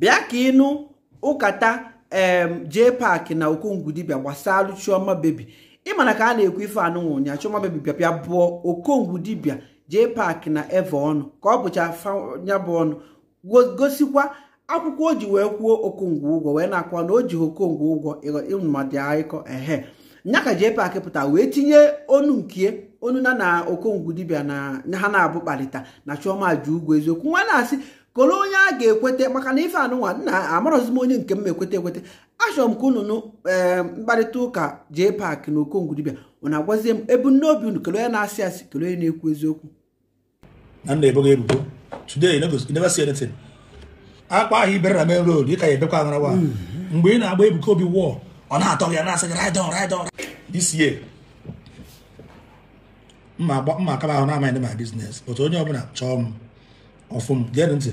bịa ka ịnụ ụkata jee paakị na okongwudibia gbasalụ chioma bebi ịmana ka a na-ekwu ife anụnwụ ụnya chioma bebi bịa bụọ okongwudibia jee paakị na eve ọnụ ka ọ bụcha ya bụ ọnụ gosikwa akwụkwọ o ji wee kwuo okongwu ụgwọ wee na-akwa na o ji okongwu ụgwọ ịmadị aịkọ ehe nya ka jee paakị pụta wee tinye onu nke onu na na okongwu dibia na ha na-abụ kparịta na chioma ji ụgwọ eziokwu nwa na-asị kolu onye a ga-ekweta maka na ife anụnwa nna amarọzi m onye nke m ekweta ekweta achọrọ m ka unu ee mkparịta ụka jee paakị na okongwudibia ụna agwazie m ebumnobi unu kelu onye na-asị asị kelu onye na-ekwu eziokwu na nna ebogo ebubo today you never see anything akpa ahụ ibere na main road ịka ya ebekwa agarawa mm-hmm. mgbe ị na-agba ebuka obi wọọ ọ na-atọ ya na-asị gị ride on ride on this year mma akaba ahụ na-amaghị ndị ma biznes otu onye ọbụla chọọ m ọfụ m ntị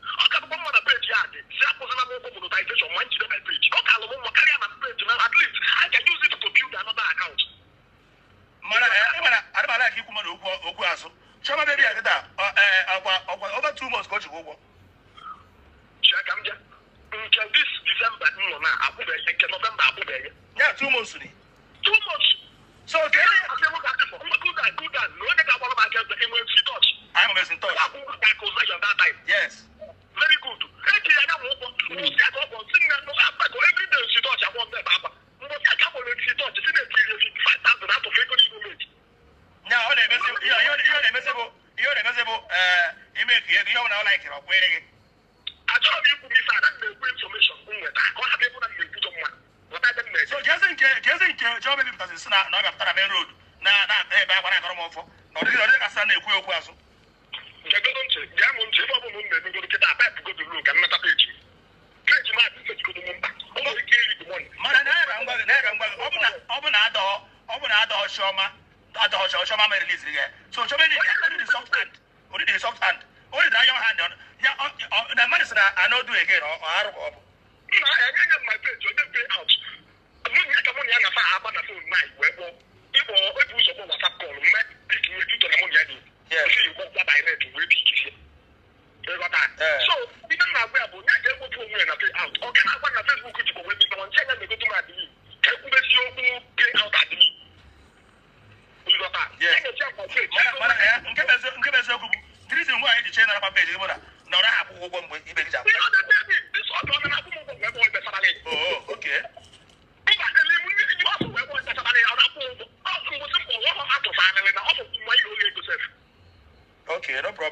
us in touch. Yes. Very good. Now, you're the miserable, you're the miserable, uh, you make it, you don't like it, I'm waiting. achọrọ m ikwu gị fada na-ekwu infọmeshọn m nweta ka ọ hapụ ebe na m na-ekwujọ nwa so jezi nke jezi nke jọọ bebipụtasị si na ọ bịapụtara main road na na-ata ebe a gbara akọrọ m ọfọ na ọ dịghị ọ dịghị kasị na-ekwu okwu na-emegoro nkịta a paịpụ godolu ka nnata peji m peji m adị mmejigodo m mba ọ nwere ike iri bụ mọnị ọ bụ na adọọ chiọma adọọ chiọma mere liziri gị so chiọma enyi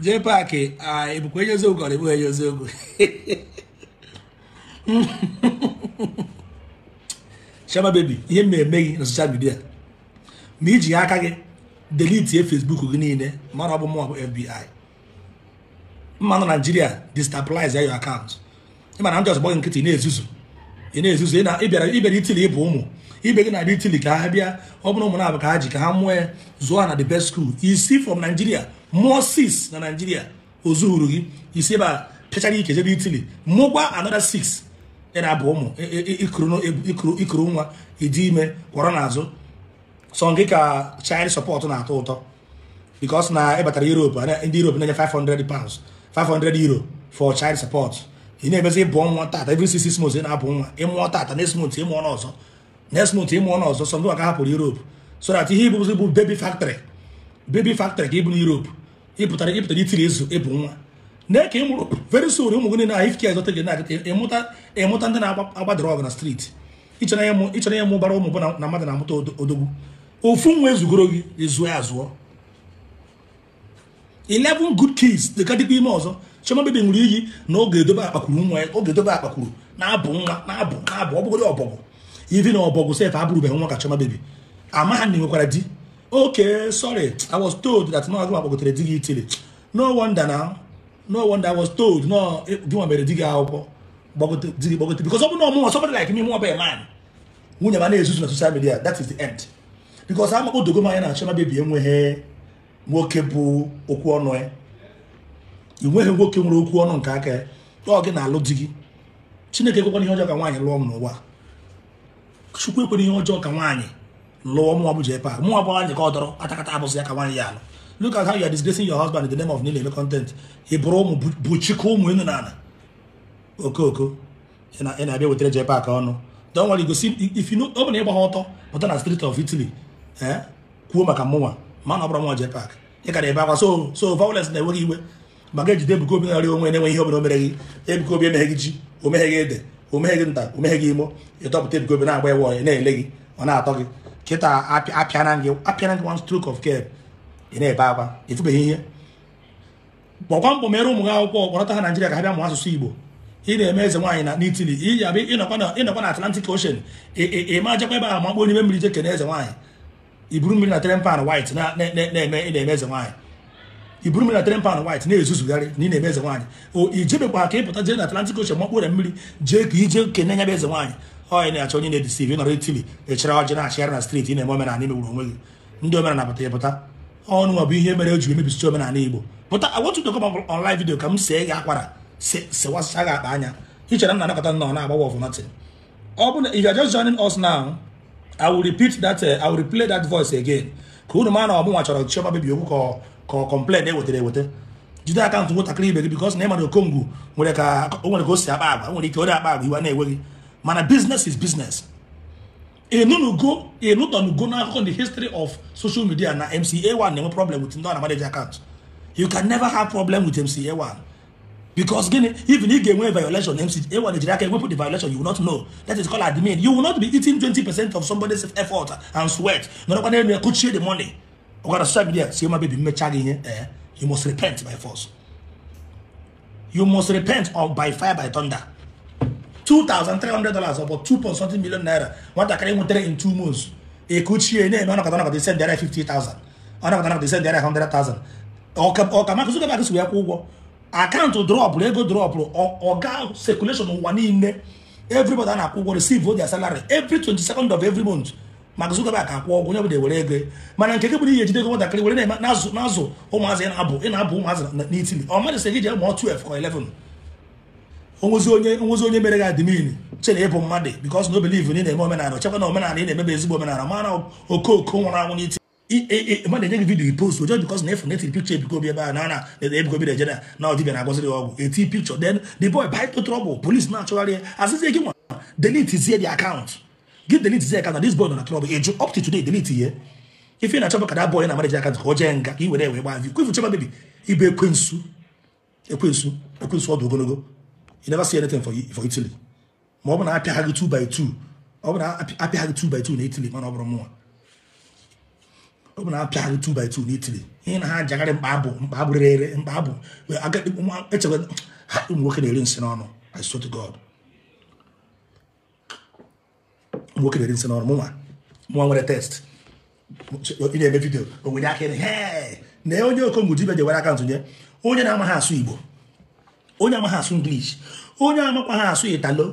jee paakị ah, ebukwa eziokwu ka ọ na-ebugha eziokwu Chioma baby ihe m na-eme gị na soshal midia ma iji aka gị delitie Facebook gị niile ma ọ bụ mụ bụ FBI mma nọ Naijiria destabilize your account ịma na ndị ọzọ gbọghị nkịtị na-ezuzu ị na-ezuzu ịbịara ịbịara itili ịbụ ụmụ ibe gị na-abịa itili ka ha bịa ọ bụrụ ụmụ na-abụ ka ha ji ka ha mụọ ya zụọ na the best school isi from Nigeria mụọ6 na naijiria ozu gị isi ebe a pịachara ike jebe itili mụkwa anọda 6 ị na-abụ ụmụ ikuru nwa ịdị e ime kwọrọ n'azụ sọ gị ka chaịd support na-atọ ụtọ bikos na ịbatara e europe ndị europe na-enye 500 pounds 500 euro for child support ị na-emezi ịbụ ọnwa tata every na-abụ nwa ịmụọ tata next ịmụọ n'ọzọ next ịmụọ n'ọzọ sọ ndị maka hapụrụ so ihe ibụzi bụ factrị ka na ịpụtara ịpụtara itiri ezu ịbụ e nwa na eke ị mụrụ very soon ụmụ gị na ifke azọta gị na-aga ịmụta ịmụta ndị na agba ọgụ na streeti ịchọrọ ya mụbara ụmụ bụ na mmadụ na-amụta odogwu ofu nwa ezugoro gị ezuo ya azụọ 11 good kids dịka dịkwa ime ọzọ chioma bebe nwere iyi na oge edobe akpakwuru nwa ya oge edobe akpakwuru na-abụ nwa na-abụ na-abụ ọ bụgodị ọbọgwụ ivi na ọbọgwụ sef abụrụbeghị nwa ka chioma bebi na enwekwara di okay sorry i was told that no agụma gbagotere di gị itili no wonder na no wonder i was told no eh, gịnwa mere di gị akwụkwọ di gị gbagote because ọ bụ na ọmụnwa somebody like me mụọ bụ man nwunye ma na-ezuzu na social media that is the end because ama odogo m anya na achọna bebi enweghị nwoke bụ okwu ọnụ ya eh. ị nweghị nwoke nwere okwu ọnụ nke aka eh. ọ gị na-alụ di gị chineke ekwekwana ihe ọjọọ ka nwaanyị lụọ m n'ụwa chukwu ekwena ihe ọjọọ ka nwaanyị lụọ mụọ bụ jepa nwa bụ anyị ka ọ dọrọ atakata abụzụ ya ka nwaanyị ya alụ look at how you are disgracing your husband in the name of nile eme content ị bụrụ ụmụ bụchikọ ụmụ enu na ala okooko ị na-abịa wetara jepa ka ọnụ don nwere igosi ifinu ọ bụla ịgba ha ọtọ pụta na street of Italy ee kwuo maka mụnwa ma na ọ bụrụ mụnwa jepak ị gara ebe akwa so so violence na-enweghị iwe maka ejide Ebuka Obi narị onwe enweghị ihe obere omere gị Ebuka Obi emeghe gị ji omeghe gị ede omeghe gị nta omeghe gị imo ịtọpụta Ebuka Obi na-agba ewe na-ele gị ọ na-atọ gị kịta apịana gị apịana gị one stroke of care ị na-ebe akwa etubeghị ihe gbọkwa mkpọ mere ụmụ gị akwụkwọ kpọrọta ha Naịjirịa ka ha bịa mụọ asụsụ Igbo ị na-eme eze nwaanyị na n'itili iyi abịa ịnọkwa na Atlantic Ocean ị ịma jakwa ebe a makpọ n'ime mmiri jeke na eze nwaanyị iburu mmiri na tren pan white na-eme na-eme eze nwaanyị i mmiri na tren pan white na-ezuzugharị na ị na-eme eze nwaanyị o ijebekwa ka ịpụta jee na Atlantic Ocean makpụre mmiri jee ka ije kene nyebe eze nwaanyị onye na-achọ onye na-edisiv nọrọ Itili echara ọjị na-achịgharị na street ị na-eme omenala imegburu onwe gị ndị omenala pụta ịpụta ọnụ bụ ihe mere o jiri mebisicha omenala Igbo pụta agwatụdokọ online vidiyo ka m see gị akwara sewasịcha gị akpa anya ichere m na anakọta nọ na-agbawa of nothing ọ bụ na if you are just I will repeat that uh, I will replay that voice again ka unu ma na ọbụnwa chọrọ Chioma Baby Owu ka ọ complain ewetara ewete. jide akaụntụ nwatakịrị ibe gị because na ịmara Okongu nwere ka o si akpa agwa nwere ike ọ dị akpa agwa iwe na-enweghị mana business is business enunugo enutonugo akụkọ the history of social media na MCA1 na-enwe problem with ndị ọ na akaụntụ you can never have problem with MCA1 because gini even if you win violation mc ewa nigeria can put the violation you will not know that is called admin you will not be eating twenty percent of somebody's effort and sweat n'ọdọkwa na could share the money ọgbara social media si my baby mmecha gị ihe eh you must repent by force you must repent or by fire by thunder two thousand three hundred dollars about two point something million naira nwatakịrị nwetara in two months ekutchie na-eme ọnọkọta ọnọkọta send there fifty thousand ọnọkọta ọnọkọta send the other hundred thousand ọka ọka maka zuga bag si wee kwụ ụgwọ akaụntụ drọpụrụ ego drọpụrụ ọga sekuleshọn ụwa niile everybody a na-akwụ ụgwọ receive their salary every 22nd of every month maka ka akwụ ọgwụ onye ọbụla ewere ego mana nke gị bụ ihe ejide ego nwatakịrị were na-azụ ụmụazị ị na-abụ ị na-abụ ụmụazị n'itili ọ mmadụ sị gị jee mụọ 12 ka eleven onwezi onye onwezi onye mere ga admin chere ịbụ mmadụ because no believe na ị na-eme omenala chekwa na omenala ị na-emebe ezigbo omenala mana okooko nwụrụ anwụ n'itili mmadụ enye gị vidiyo post ojo bikos na efu netiri pikchọ bi ebe a na na ebikobi Nigeria na ọdịbịa na-agọziri ọgwụ eti pikchọ then di boy bite trouble police na-achọgharị ya asịzie gị nwa delete zie the account gị delete zie account na dis boy nọ na trouble eju up to today delete ye ife na-achọpụ ka na manager ka o jee nga ka i were wee gbaa vi kwefu chema bebi ibe ekwensu ekwensu ekwensu ọdụ ogologo you never see anything for, ma ọ bụ na apịa ha gị 2 by ọ bụ na apịa ha gị na mana ọ bụrụ ọ bụ na apịagharị 2 by 2 n'itiri ihe na ha jagharị mkpa abụ mkpa abụ rere mkpa abụ echekwa ha ụmụ nwoke na-eri nsị n'ọnụ I swear God ụmụ nwoke na-eri nsị n'ọnụ mụnwa mụnwa nwere test ị na-eme vidio o nwere aka ịrị na onye okongwu dibia jewere aka nye onye na-amaghị asụ Igbo onye amaghị asụ English onye amakwaghị asụ Italo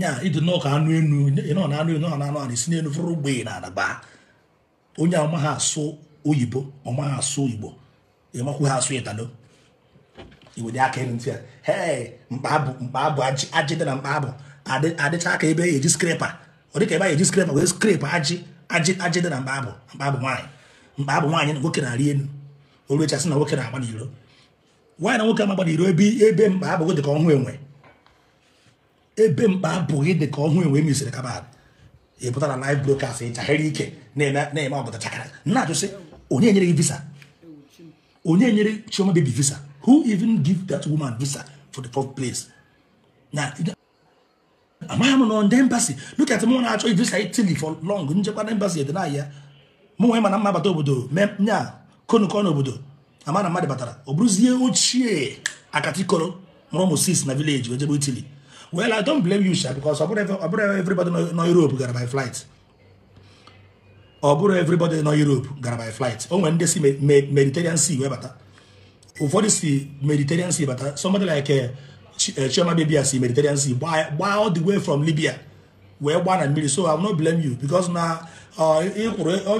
ya ịdị nnọọ ka anụ enu ịnọ na anụ enu ọ na anụ a na n'elu fụrụ ogbe na adaba onye ha asụ oyibo ọma ha asụ igbo ịmakwu ha asụ italo iwere aka ịrụ ntị a. hee mkpa abụ ajị dị na mkpa abụ adịcha aka ebe eji skrepa ọ dịka ebe a eji skrepa wee skrepa ajị ajị ajị dị na mkpa abụ mkpa abụ nwaanyị mkpa nwaanyị na nwoke na-arị elu orechasị na nwoke na-agba n'iro nwaanyị na nwoke amagba n'iro ebe ebe mkpa abụghị dị ka ọhụụ enwe ebe mkpa abụghị dị ka ọhụụ enwe e mesịrị kabadị ya na live broadcast ịchaghịrị ike na-eme ọbụta chakara na-ajụsị onye nyere gị visa onye nyere chioma baby visa who even give that woman visa for the fourth place na amaghị m na ndị embassy look at mụ na-achọ visa Italy for long njekwa na embassy ede n'ahịa mụ ma na mma bata obodo nya konukọ n'obodo ama mmadụ batara ọ bụrụzie ochie akatikoro mụrụ ụmụ na vileji ojebe Italy Well, I don't blame you, sir, because I put everybody know Europe gara buy flights, ọ everybody nọ Europe gara by flight o nwere ndị si Mediterranean Sea wee bata ụfọdụ si Mediterranean Sea bata somebody like eh, Chioma eh, Bibia si Mediterranean Sea gbaa all the way from Libya wee gbaa na mmiri so I will not blame you because na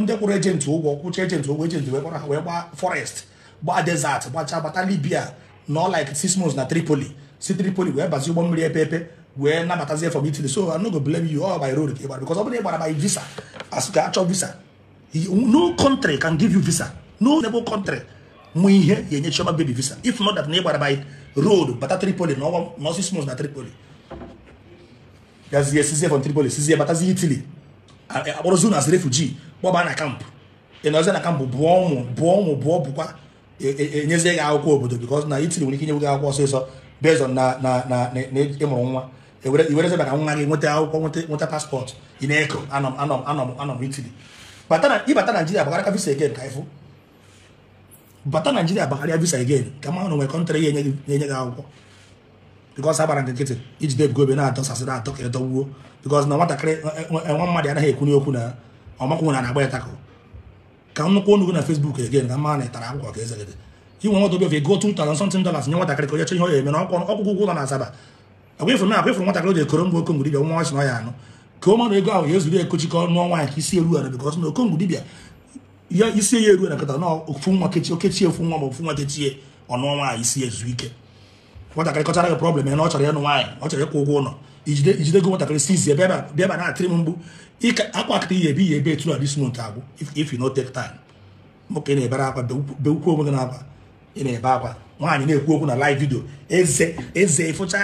ndị kwụrụ ejenti ụgwọ kwụcha ejenti ụgwọ ejenti wee kwara ha wee gbaa forest gbaa desert gbachaa bata Libya nọ like six months na Tripoli si Tripoli wee bazie ụgbọ mmiri epe epe wee for from Italy so I no go blame you all by road ka because ọ bụrụ by visa as the actual visa no country can give you visa no neighbor country mụ ihe ya enye Chioma baby visa if not that neighbor by road but bata Tripoli No one na ọsịs mos na Tripoli gazie sizie from Tripoli sizie batazie Italy akpọrọzi uh, unu uh, as refugee kpọba na kampụ ị nọzie na kampụ bụọ ụmụ bụọ ụmụ bụọ bụkwa enyezie eh, eh, eh, gị akwụkwọ obodo because na Italy nwere ike inye gị akwụkwọ so. based on na na na ịmụrụ nwa iwereze e maka nwa gị nweta akwụkwọ nweta paspọtụ ị na-eko anọ anọ anọ anọ Italy ịbata Naijiria bagharịa visa again ka ịfụ bata Naijiria bagharịa visa again ka ma na nwere kọntrị ya enye gị akwụkwọ bikos agbara nkịtị ijide ebugo ebe na-adọsasị na-adọ ka edọgbuo bikos na nwatakịrị e, e, nwa mmadụ anaghị ekwunye okwu na ọmakwụ nwere na-agba ịtakụ ka nnukwu onugwu na Facebook again ka mma na ịtara akwụkwọ ka eze inwe nwadobe go two thousand something dollars nye nwatakịrị ka onye chọ ihe onye eme na ọkwụkwọ ụgwọ ụlọ na asaba agwa ifuru na agwa ifuru nwatakịrị oge koro ngwa okongwu dibia nwa ọsị na ọya anụ ka ọ mara ego ahụ ya ezuru ekochi ka ọnụ ọnwa nke isi eru ara bikọs na okongwu dibia ya isi ya eru go month if you take time ị na-ebe akwa nwaanyị na-ekwu okwu na live video eze eze ịfụcha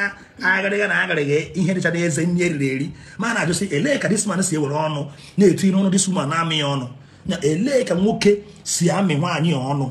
agharịga na agharịga ihe dịchara eze nri eriri eri ma na-ajụsị elee ka disman si ewere ọnụ na-etu ire ọnụ disman na-amị ya ọnụ na elee ka nwoke si amị nwaanyị ọnụ